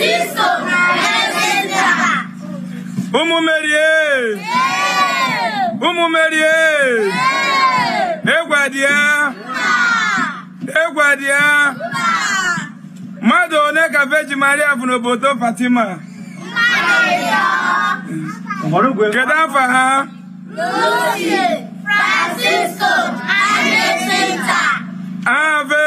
Kristo naenenda. Ụmụ Merie! Ụmụ Merie! Egwadị ya! Egwadị one ka Veji Maria bụ n'obodo Fatima? Kedu afọ ha? Lucy Francisco Adesita. Ave!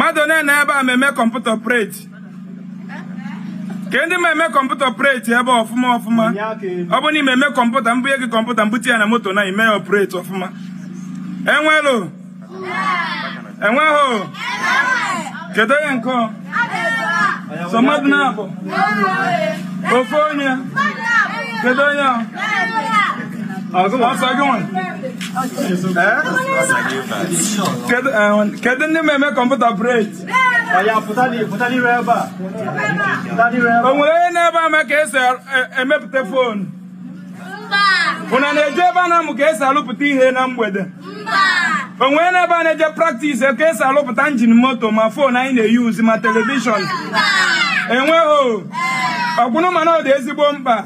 mmadụ onye na ebe a ma eme kọmputa preti ka ndị ma eme kọmputa preti ebe ọfụma ọfụma ọ bụ na ime eme kọmputa mbunye gị kọmputa mbute ya na moto na ime ya ọfụma enwelo enweghị kedu onye nke so mmadụ na-abụ ofe onye kedu onye ọsọ gị kedu ndị ma eme kọmputa bred o onye na-ebe ama ka esi emepụta fonu ụna na-eje ebe a na-amụ ka esi alụpụta ihe na mgbede Onwere nwere n'ebe a na-eje praktis ka esi alụpụta njin moto ma fonu anyị na-eyuzi ma telivishọn enweghị ọgwụnụ mana ọ dị ezigbo mkpa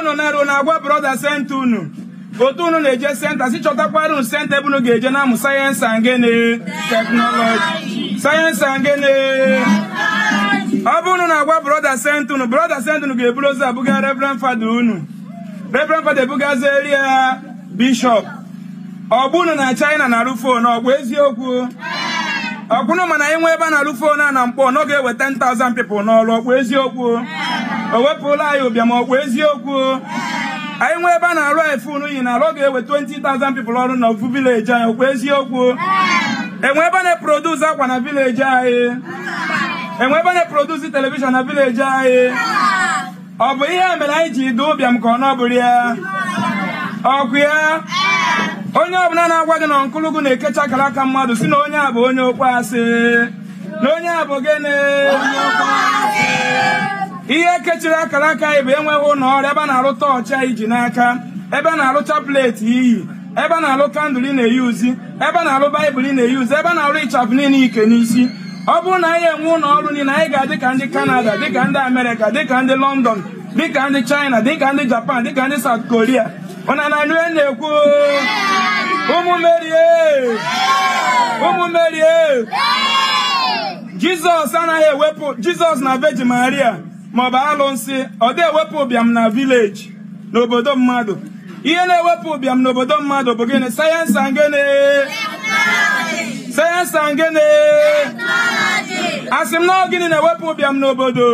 unu eh. na-arụ na-agwa brọda sent unu otu unu na-eje senta si chọtakwara senta ebe unu ga-eje na-amụ sayensị angene teknọlọji sayensị angene ọ bụ unu na-agwa brọda senta unu brọda senta unu ga-eburu ozi abụga reverend fada unu reverend fada ebugazieri ya bishọp ọ unu na china na-arụ fon ọ bụ eziokwu ọkwụnụ mana anyị nwe ebe a na-alụ fon a na mkpọ n'oge ga-eweta 10,000 people n'ọrụ ọkwa eziokwu o wepụla anyị ụbịam ọkwa eziokwu anyị nwee ebe a na-arụ anyị fonu yi na alụ ọ ga-ewe 20,000 people ọrụ na ofu vileji anyị okwu eziokwu enwe ebe na-eproduce akwa na vileji anyị enwe ebe na-eproduce telivishọn na vileji anyị ọ bụ ihe mere anyị ji dị ụbịam ka ọ nọbụrụ ya ọkụ ya onye ọbụla na-agwa gị na nkụlụgụ na-ekecha akara aka mmadụ si na onye a bụ onye okwe asị na onye a bụ gịnị ihe kechiri akara aka anyị bụ enweghị ụlọ ọrụ ebe a na-arụta ọcha iji n'aka ebe a na-arụcha pleeti iyi ebe a na-alụ kandụl ị na-eyuzi ebe a na-alụ baịbụl ị na-eyuzi ebe a na arụ ịchafụ niile ike n'isi ọ bụrụ na anyị enwe ụlọ ọrụ niile anyị ga-adị ka ndị kanada dịka ndị amerịka dịka ndị lọndọn dịka ndị china dịka ndị japan dịka ndị saut koria ụna na nue na-ekwu ụmụ merie eh! eh! jizọs anaghị ewepụ jizọs na veji maria maọbụ alụsị ọ dị ewepụ ụbịam na vileji n'obodo mmadụ ihe na-ewepụ ụbịam n'obodo mmadụ bụ gịnị sayensị angene sayensị angene asị m na gịnị na-ewepụ ụbịam n'obodo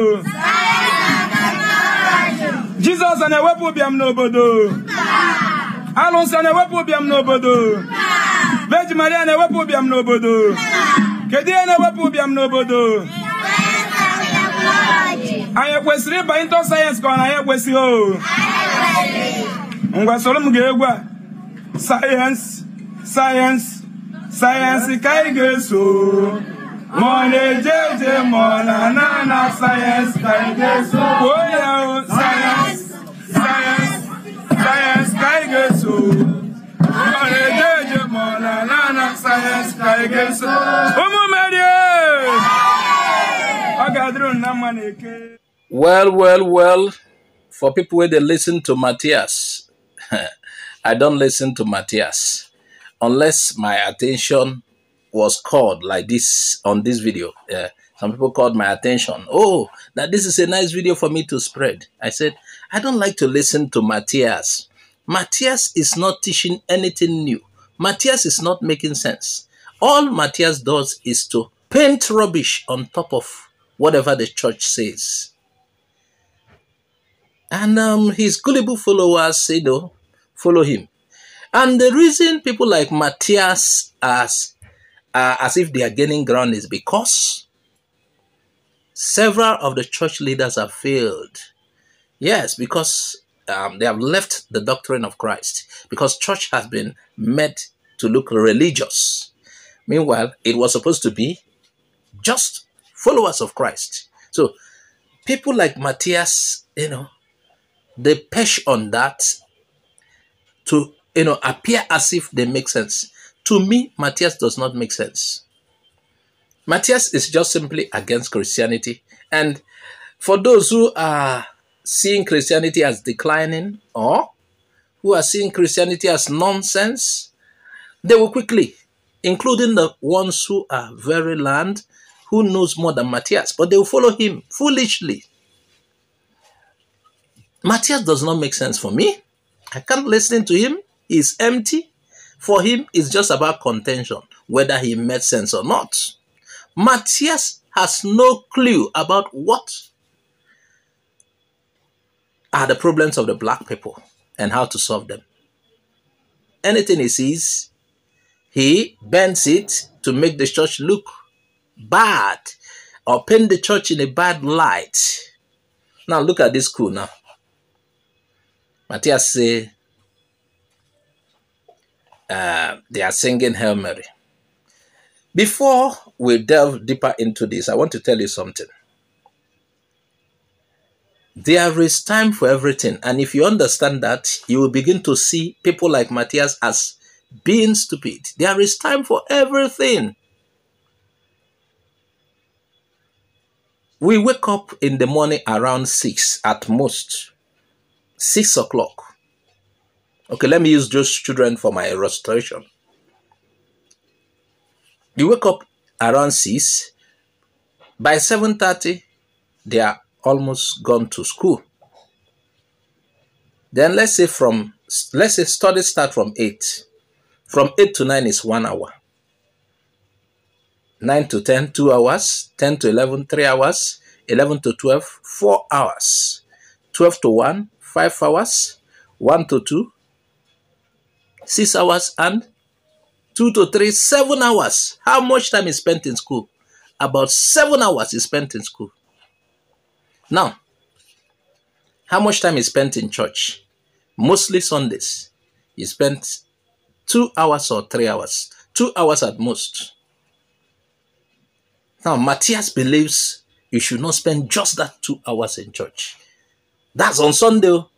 jizọs na-ewepụ ụbịam n'obodo alụsị a na-ewepụ ụbịam n'obodo veji maria na-ewepụ ụbịam n'obodo kedu ihe na-ewepụ ụbịam n'obodo anyị ekwesịrị ịba ịntọ sayensị ka ọ na anyị ekwesịghị o ngwa soro m ga-egwu a sayensị sayensị sayensị ka anyị ga-eso ma ọ na-eje eje ma ọ na-ana ana sayensị ka anyị ga-eso kwuo oh, ya o oh, sayensị sayensị sayensị ka anyị ga-eso ma ọ na-eje eje ma ọ na-ana ana sayensị ka anyị ga-eso ụmụ merie oh! ọ ga-adịrị na mma na eke Well, well, well, for people where they listen to Matthias, I don't listen to Matthias unless my attention was called like this on this video. Uh, some people called my attention. Oh, now this is a nice video for me to spread. I said, I don't like to listen to Matthias. Matthias is not teaching anything new. Matthias is not making sense. All Matthias does is to paint rubbish on top of whatever the church says. And um, his gullible followers, you know, follow him. And the reason people like Matthias as, uh, as if they are gaining ground is because several of the church leaders have failed. Yes, because um, they have left the doctrine of Christ, because church has been made to look religious. Meanwhile, it was supposed to be just followers of Christ. So people like Matthias, you know, they push on that to you know appear as if they make sense. To me, Matthias does not make sense. Matthias is just simply against Christianity. And for those who are seeing Christianity as declining or who are seeing Christianity as nonsense, they will quickly, including the ones who are very learned, who knows more than Matthias, but they will follow him foolishly. Matthias does not make sense for me. I can't listen to him. He's empty. For him, it's just about contention, whether he made sense or not. Matthias has no clue about what are the problems of the black people and how to solve them. Anything he sees, he bends it to make the church look bad or paint the church in a bad light. Now look at this school now. Matthias say uh, they are singing Hail Mary. Before we delve deeper into this, I want to tell you something. There is time for everything. And if you understand that, you will begin to see people like Matthias as being stupid. There is time for everything. We wake up in the morning around 6 at most six o'clock. Okay, let me use those children for my illustration. You wake up around six. By seven thirty, they are almost gone to school. Then let's say from let's say study start from eight. From eight to nine is one hour. 9 to 10, 2 hours, 10 to 11, 3 hours, 11 to 12, 4 hours, 12 to 1, 5 hours, 1 to 2, 6 hours, and 2 to 3, 7 hours. How much time is spent in school? About 7 hours is spent in school. Now, how much time is spent in church? Mostly Sundays. You spent 2 hours or 3 hours. 2 hours at most. Now, Matthias believes you should not spend just that two hours in church. That's on Sunday. Oh.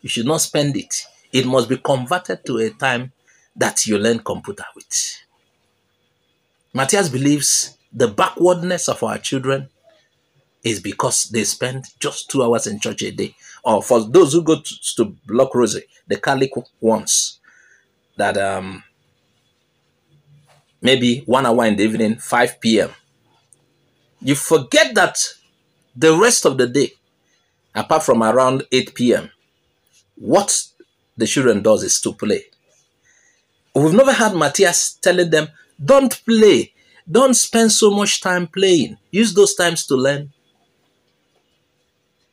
You should not spend it. It must be converted to a time that you learn computer with. Matthias believes the backwardness of our children is because they spend just two hours in church a day. Or for those who go to, to Block Rosy, the Catholic ones, that um, maybe one hour in the evening, 5 p.m. You forget that the rest of the day apart from around 8 p.m., what the children does is to play. We've never had Matthias telling them, don't play. Don't spend so much time playing. Use those times to learn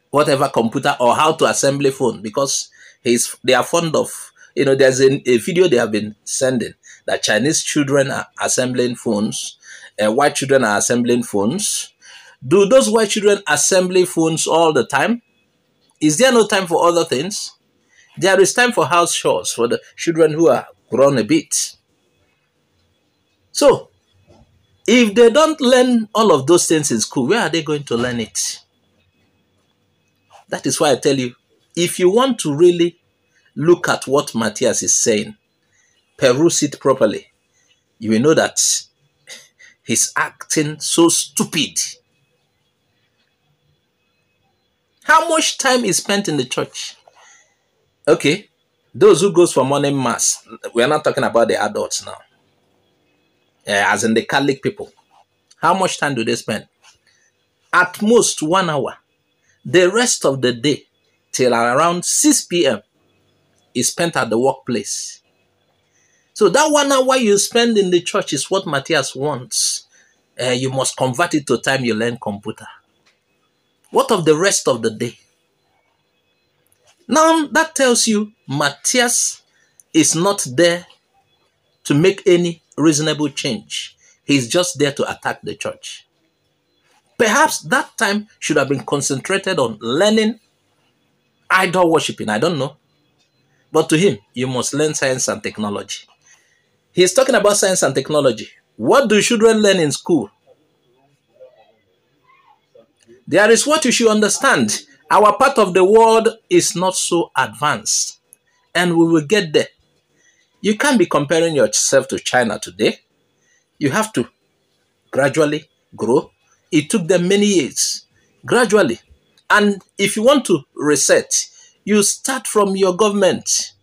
whatever computer or how to assembly phone because he's, they are fond of, you know, there's a, a video they have been sending that Chinese children are assembling phones, uh, white children are assembling phones. Do those white children assembly phones all the time? Is there no time for other things? There is time for house chores for the children who are grown a bit. So, if they don't learn all of those things in school, where are they going to learn it? That is why I tell you if you want to really look at what Matthias is saying, peruse it properly. You will know that he's acting so stupid how much time is spent in the church. Okay, those who goes for morning mass, we are not talking about the adults now, as in the Catholic people. How much time do they spend? At most one hour. The rest of the day, till around 6 p.m., is spent at the workplace. So that one hour you spend in the church is what Matthias wants. Uh, you must convert it to time you learn computer. What of the rest of the day? Now that tells you Matthias is not there to make any reasonable change. He's just there to attack the church. Perhaps that time should have been concentrated on learning idol worshiping. I don't know. But to him, you must learn science and technology. He's talking about science and technology. What do children learn in school? There is what you should understand. Our part of the world is not so advanced, and we will get there. You can't be comparing yourself to China today. You have to gradually grow. It took them many years, gradually. And if you want to reset, you start from your government.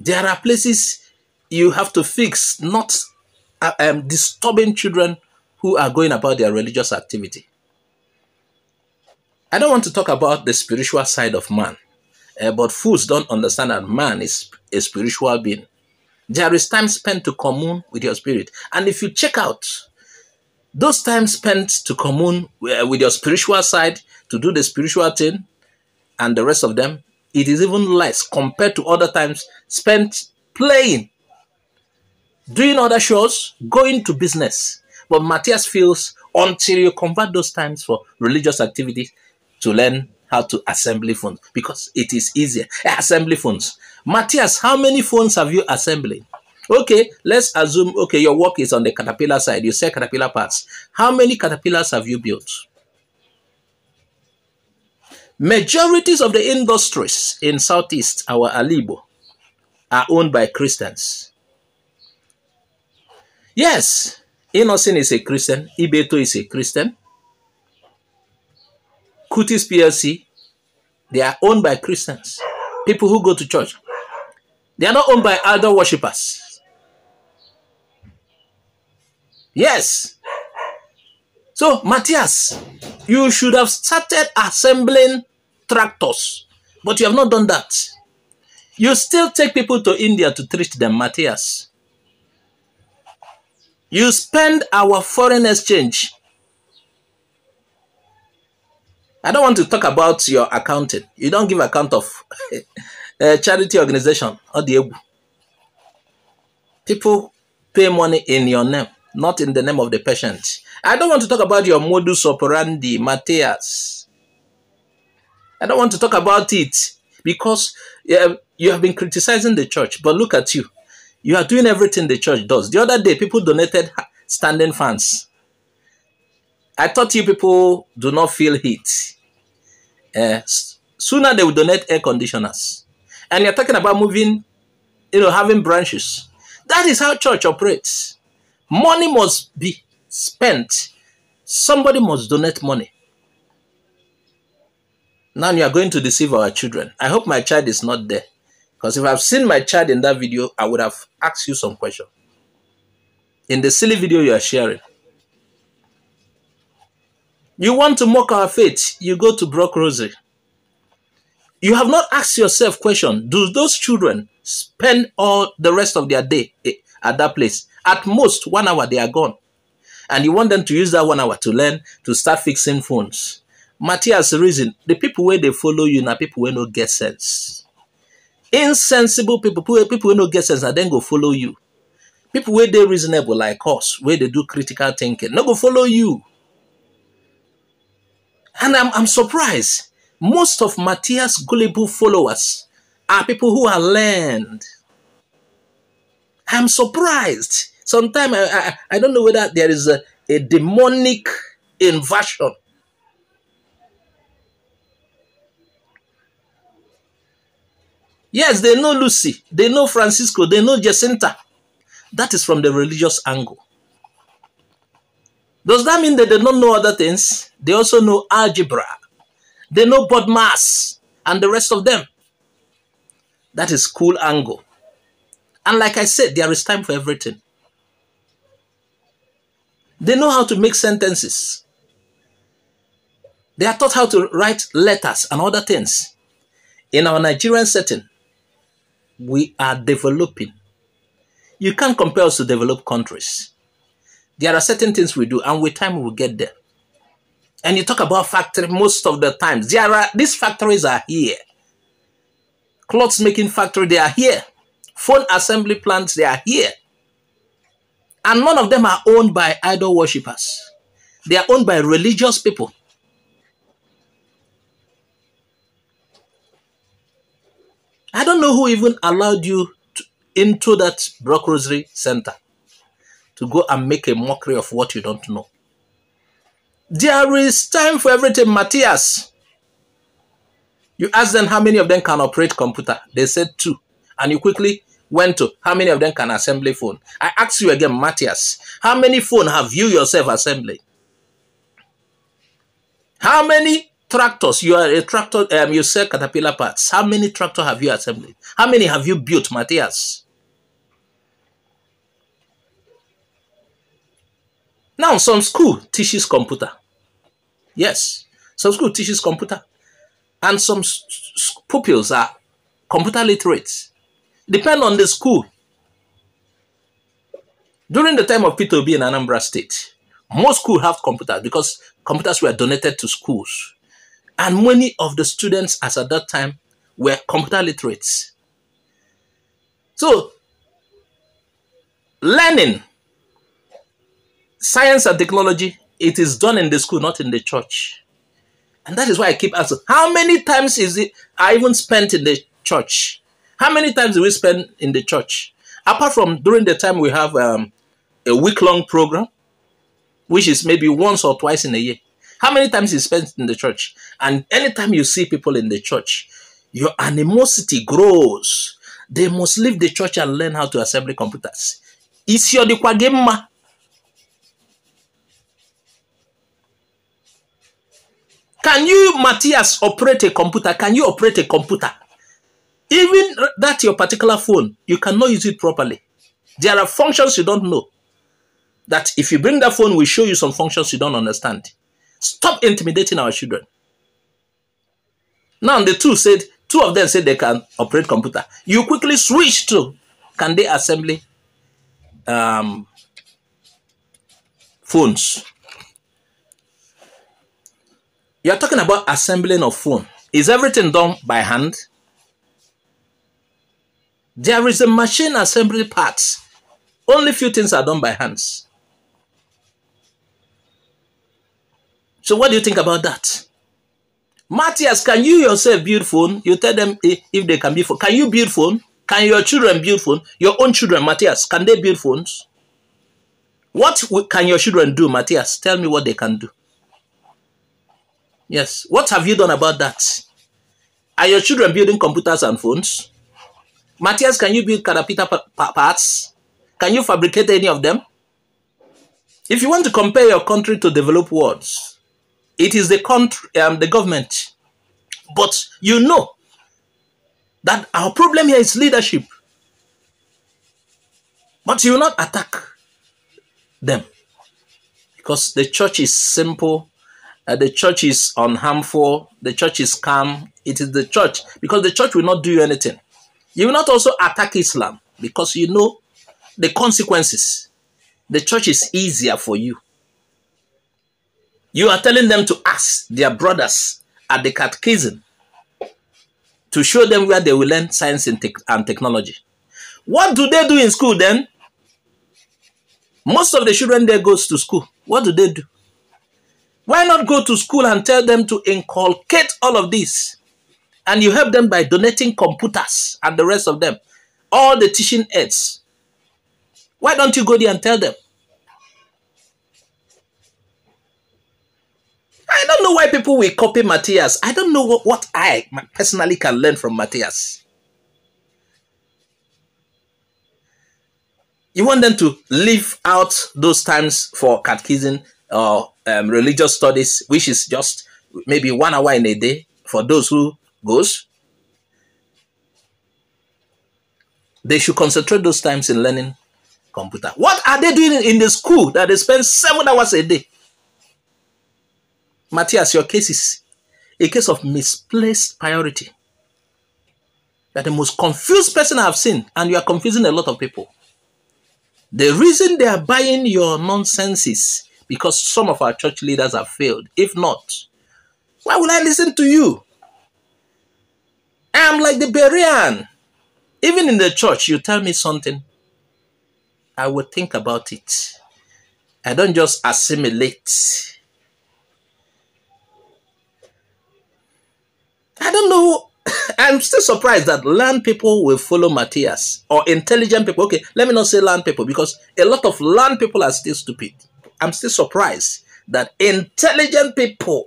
There are places you have to fix, not uh, um, disturbing children who are going about their religious activity. I don't want to talk about the spiritual side of man, uh, but fools don't understand that man is a spiritual being. There is time spent to commune with your spirit. And if you check out those times spent to commune eh, with your spiritual side, to do the spiritual thing, and the rest of them, it is even less compared to other times spent playing, doing other shows, going to business. But Matthias feels until you convert those times for religious activities to learn how to assembly phones because it is easier. Eh, assembly phones. Matthias, how many phones have you assembled? Okay, let's assume, okay, your work is on the caterpillar side. You sell caterpillar parts. How many caterpillars have you built? Majorities of the industries in Southeast, our Alibo, are owned by Christians. Yes, Innocent is a Christian. Ibeto is a Christian. Kutis PLC, they are owned by Christians, people who go to church. They are not owned by idol worshippers. Yes. So, Matthias, you should have started assembling tractors, but you have not done that. You still take people to India to treat them, Matthias. You spend our foreign exchange. I don't want to talk about your accounting. You don't give account of a eh, charity organization or the Ebu. People pay money in your name, not in the name of the patient. I don't want to talk about your modus operandi, Matthias. I don't want to talk about it because eh, you have been criticizing the church, but look at you. You are doing everything the church does. The other day, people donated standing fans. I thought you people do not feel heat. Uh, sooner they will donate air conditioners. And you're talking about moving, you know, having branches. That is how church operates. Money must be spent. Somebody must donate money. Now you are going to deceive our children. I hope my child is not there. Because if I've seen my child in that video, I would have asked you some question. In the silly video you are sharing. You want to mock our faith, you go to Brock Rosary. You have not asked yourself question, do those children spend all the rest of their day at that place? At most, one hour they are gone. And you want them to use that one hour to learn, to start fixing phones. Matthias reason, the people where they follow you now people where no get sense insensible people people who no get sense and then go follow you people where they reasonable like us where they do critical thinking no go follow you and i'm i'm surprised most of matthias gullible followers are people who are learned i'm surprised sometimes i i, I don't know whether there is a, a demonic inversion Yes, they know Lucy, they know Francisco, they know Jacinta. That is from the religious angle. Does that mean that they don't know other things? They also know algebra. They know bodmas and the rest of them. That is cool angle. And like I said, there is time for everything. They know how to make sentences. They are taught how to write letters and other things. In our Nigerian setting, we are developing. You can't compare us to developed countries. There are certain things we do, and with time we'll get there. And you talk about factory most of the times. There are these factories are here. Clothes making factory, they are here. Phone assembly plants, they are here. And none of them are owned by idol worshippers. They are owned by religious people I don't know who even allowed you to, into that Brock Rosary Center to go and make a mockery of what you don't know. There is time for everything, Matthias. You ask them how many of them can operate computer. They said two. And you quickly went to how many of them can assemble phone. I ask you again, Matthias, how many phone have you yourself assembling? How many Tractors, you are a tractor, um, you sell caterpillar parts. How many tractor have you assembled? How many have you built, Matthias? Now, some school teaches computer. Yes, some school teaches computer. And some pupils are computer literate. Depend on the school. During the time of Peter B in Anambra State, most schools have computers because computers were donated to schools and many of the students as at that time were computer literates. So, learning, science and technology, it is done in the school, not in the church. And that is why I keep asking, how many times is it I even spent in the church? How many times do we spend in the church? Apart from during the time we have um, a week-long program, which is maybe once or twice in a year. How many times you spent in the church? And anytime you see people in the church, your animosity grows. They must leave the church and learn how to assemble computers. Is your dikwagema. Can you, Matthias, operate a computer? Can you operate a computer? Even that your particular phone, you cannot use it properly. There are functions you don't know. That if you bring that phone, we show you some functions you don't understand. Stop intimidating our children. Now the two said, two of them said they can operate computer. You quickly switch to can they assembly um, phones. You're talking about assembling of phone. Is everything done by hand? There is a machine assembly parts. Only few things are done by hands. So what do you think about that? Matthias, can you yourself build phone? You tell them if they can build phone. Can you build phone? Can your children build phone? Your own children, Matthias, can they build phones? What can your children do, Matthias? Tell me what they can do. Yes. What have you done about that? Are your children building computers and phones? Matthias, can you build carapita parts? Can you fabricate any of them? If you want to compare your country to developed worlds, it is the country, um, the government. But you know that our problem here is leadership. But you will not attack them because the church is simple, uh, the church is unharmful, the church is calm. It is the church because the church will not do you anything. You will not also attack Islam because you know the consequences. The church is easier for you. You are telling them to ask their brothers at the catechism to show them where they will learn science and, te and technology. What do they do in school then? Most of the children there goes to school. What do they do? Why not go to school and tell them to inculcate all of this? And you help them by donating computers and the rest of them, all the teaching aids. Why don't you go there and tell them? I don't know why people will copy Matthias. I don't know what, what I personally can learn from Matthias. You want them to leave out those times for catechism or um, religious studies, which is just maybe one hour in a day for those who goes. They should concentrate those times in learning computer. What are they doing in the school that they spend seven hours a day? Matthias, your case is a case of misplaced priority. You are the most confused person I've seen, and you are confusing a lot of people. The reason they are buying your nonsense is because some of our church leaders have failed. If not, why would I listen to you? I am like the Berean. Even in the church, you tell me something, I will think about it. I don't just assimilate. I don't know. I'm still surprised that land people will follow Matthias or intelligent people. Okay, let me not say land people because a lot of land people are still stupid. I'm still surprised that intelligent people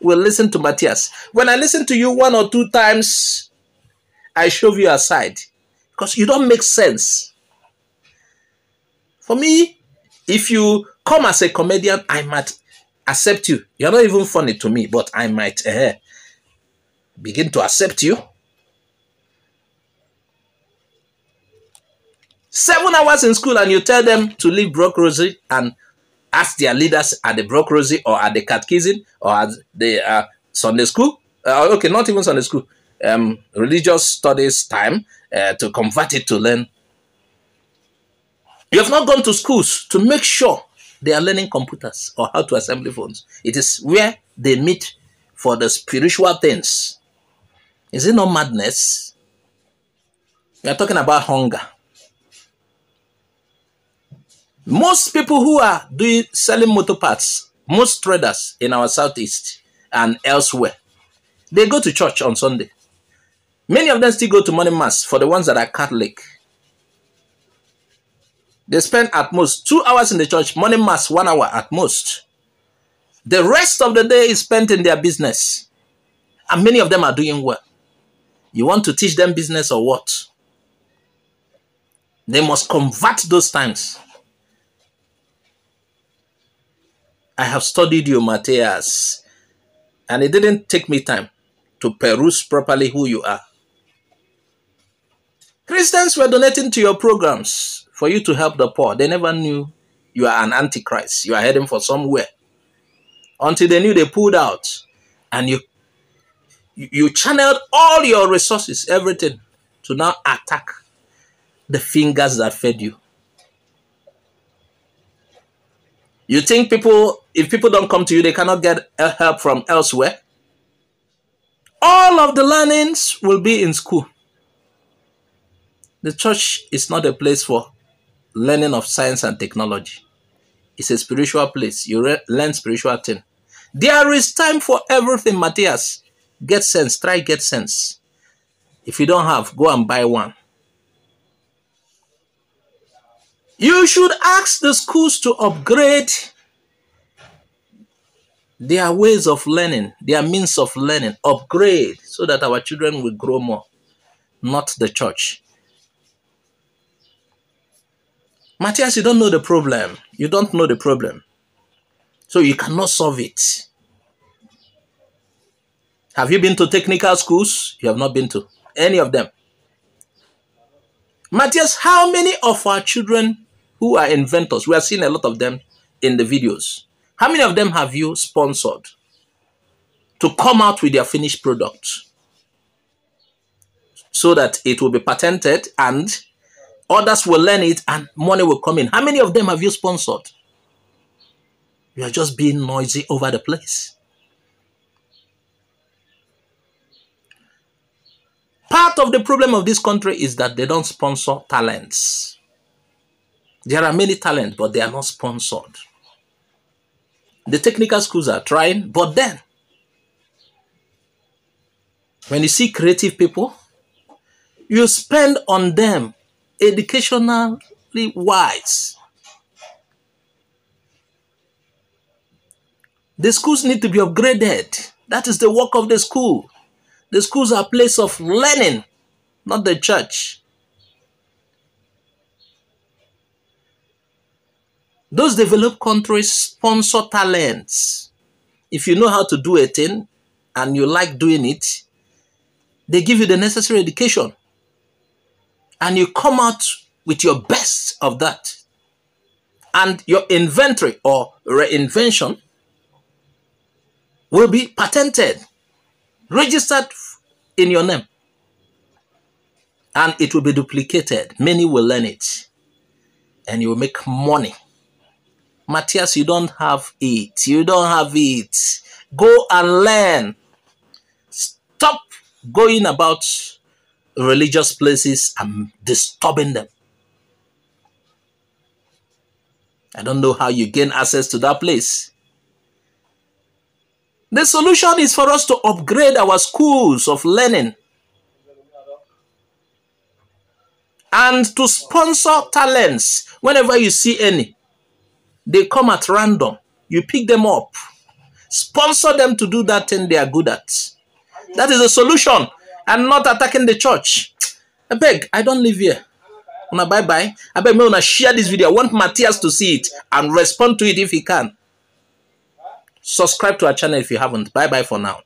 will listen to Matthias. When I listen to you one or two times, I shove you aside because you don't make sense. For me, if you come as a comedian, I might accept you. You're not even funny to me, but I might. Uh, begin to accept you. Seven hours in school and you tell them to leave brokerage and ask their leaders at the brokerage or at the catechism or at the uh, Sunday school. Uh, okay, not even Sunday school. Um, religious studies time uh, to convert it to learn. You have not gone to schools to make sure they are learning computers or how to assemble phones. It is where they meet for the spiritual things. Is it not madness? We are talking about hunger. Most people who are doing selling motor parts, most traders in our southeast and elsewhere, they go to church on Sunday. Many of them still go to morning mass for the ones that are Catholic. They spend at most two hours in the church, morning mass, one hour at most. The rest of the day is spent in their business. And many of them are doing well. You want to teach them business or what? They must convert those times. I have studied you, Matthias, and it didn't take me time to peruse properly who you are. Christians were donating to your programs for you to help the poor. They never knew you are an antichrist. You are heading for somewhere. Until they knew they pulled out and you you, channeled all your resources, everything, to now attack the fingers that fed you. You think people, if people don't come to you, they cannot get help from elsewhere? All of the learnings will be in school. The church is not a place for learning of science and technology. It's a spiritual place. You re- learn spiritual things. There is time for everything, Matthias. Get sense. Try get sense. If you don't have, go and buy one. You should ask the schools to upgrade their ways of learning, their means of learning, upgrade so that our children will grow more, not the church. Matthias, you don't know the problem. You don't know the problem. So you cannot solve it. Have you been to technical schools? You have not been to any of them. Matthias, how many of our children who are inventors, we are seeing a lot of them in the videos, how many of them have you sponsored to come out with their finished product so that it will be patented and others will learn it and money will come in? How many of them have you sponsored? You are just being noisy over the place. Part of the problem of this country is that they don't sponsor talents. There are many talents, but they are not sponsored. The technical schools are trying, but then, when you see creative people, you spend on them educationally wise. The schools need to be upgraded. That is the work of the school. The schools are a place of learning, not the church. Those developed countries sponsor talents. If you know how to do a thing and you like doing it, they give you the necessary education. And you come out with your best of that. And your inventory or reinvention will be patented registered in your name. And it will be duplicated. Many will learn it. And you will make money. Matthias, you don't have it. You don't have it. Go and learn. Stop going about religious places and disturbing them. I don't know how you gain access to that place. The solution is for us to upgrade our schools of learning and to sponsor talents whenever you see any. They come at random. You pick them up. Sponsor them to do that thing they are good at. That is a solution and not attacking the church. I beg, I don't live here. Una bye bye. I beg me una share this video. I want Matthias to see it and respond to it if he can. Subscribe to our channel if you haven't. Bye bye for now.